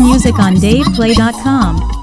music on DavePlay.com.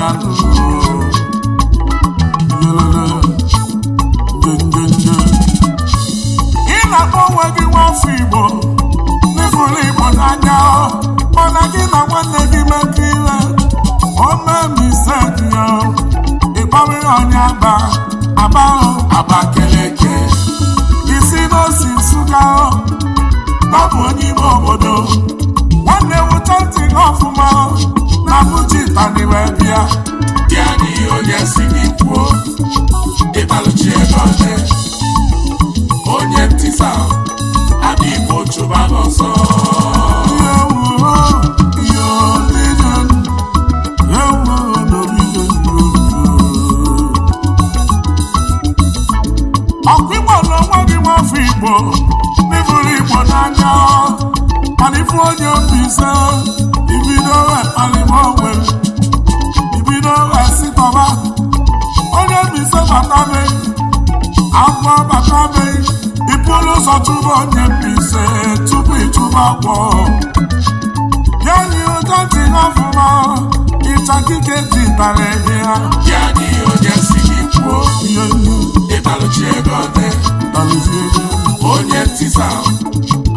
ị na-akpọ onwe gị nwafọ igbo n'ịfụrụ igbo n'anya mana gị na nwanne gị mekọ ile omemisedio ịkpọrịrị onye aba aba abakeleke isi n'osi nsụka ọ bụ onye ime obodo ewuta ntị gị ọfụma na bụjitani wee bịa bịa n'ihe onye si gị kwuo ịbalụchi ego oche onye ntịsa adị igbo chụba gị ọsọ ọkụ igbo na onwe gị nwafọ igbo n'ịbụrụ igbo n'anya ife onye mbise ibido alimogbe ibido esitọba onye mbise batabe agwọ batabe ibulu ụzọ tụba onye mbise tupu ịtụba agwọ ya yi ụjọ dị n'ọfụma ịchakike dị dara ehe ha ya dị onye si gị kwuo ihe ịbalụchi ego ọdị onye ntisa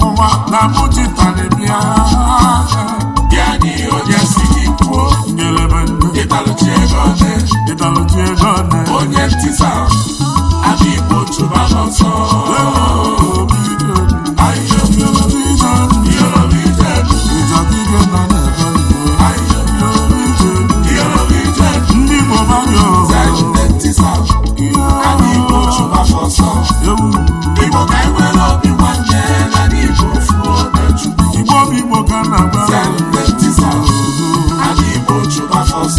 ọnwụnwa na mụjitara bịa bịa onye si gị kwuo ndụ onye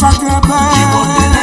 nchakebe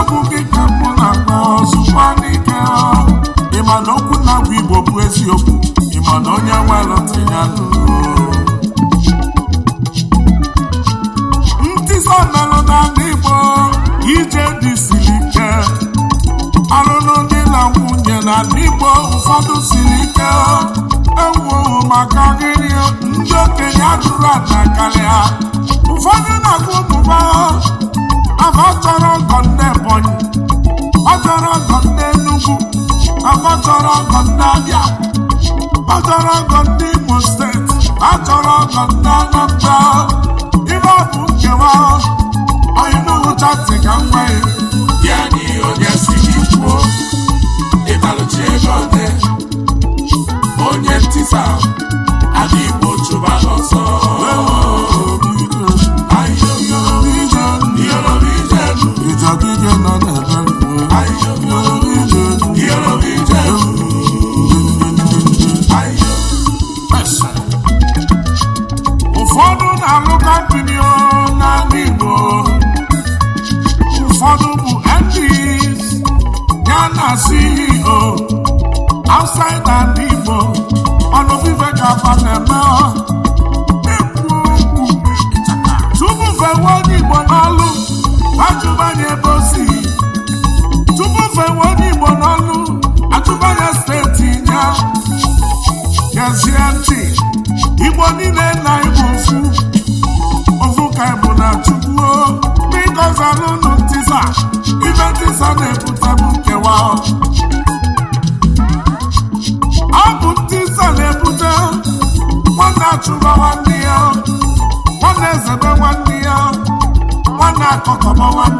okwu gị ka na-akpa ọzụkwa n'ike ịma na okwu na-abụ igbo bụ eziokwu ịma na onye welụtị ya ntịsa melụ n'ala igbo ije dị siri ike alụlụ dị na nwunye n'ala igbo ụfọdụ siri ike ewuo maka gịrị ndị okenye ajụrụ ada karịa ụfọdụ na-agụ ụmụ Aka ọ chọrọ ọgọ ndị Ebonyi, ọ chọrọ ọgọ ndị Enugu, aka chọrọ ọgọ ndị Abịa, ọ chọrọ ọgọ ndị Imo steeti, a chọrọ ọgọ ndị Anambra. Ibe ọ bụ nkewa, onye n'ụcha si ka m Ya Ya ni onye si gị kwuo, ịbalụchi ego onye, onye ntisa. ọnwa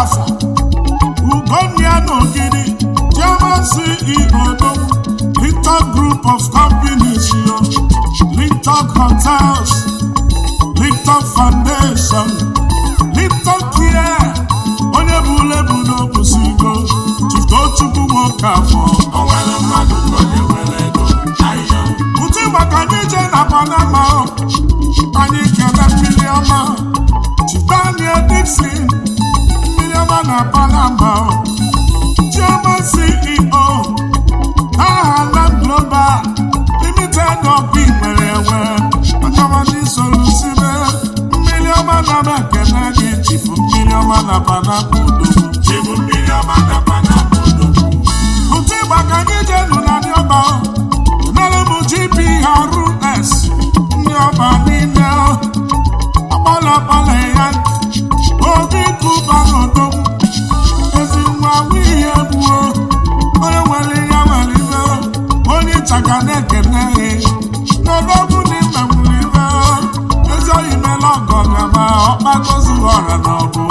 ọfọ ugonia na ogidi chairman ceo no linton group of companies yo linton hotels foundation linton care onye bụ lebu n'obusigo tuto nwoke afọ ọma na ka anyị je nụ ndị ọba m gp rs ndị ọba niile akpala akpala ya onye nwere ihe nwere na n'ebe ọ na ịmenwụrụ ihe ezi oyi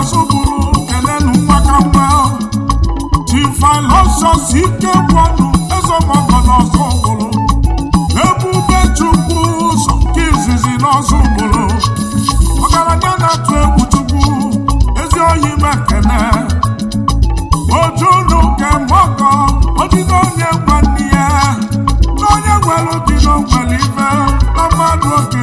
ọsọgburu kelenu mgbakamba chifilọsọs ike gwọnụ ezọgbọgọ n'ọsọgburu ebube chukwu sọ nke izizi n'ọsọgburu ọgaranya na-atụ egwu chukwu ezi oyi mekene ojunu kemọgọ odide onye gwanne ya na onye nwere dị n'ogwere na mmadụ oge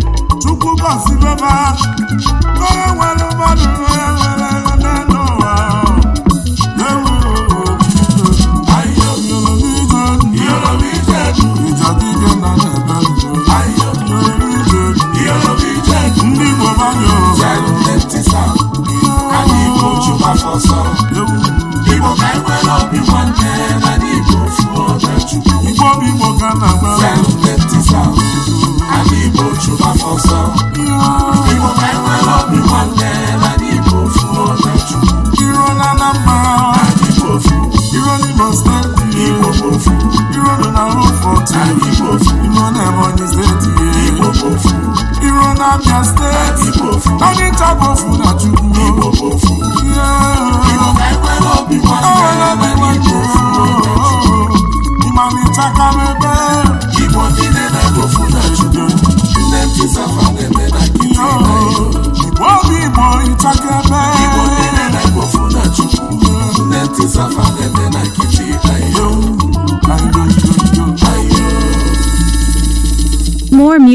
Kukosi beba Nore wale madu ya.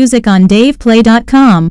music on DavePlay.com.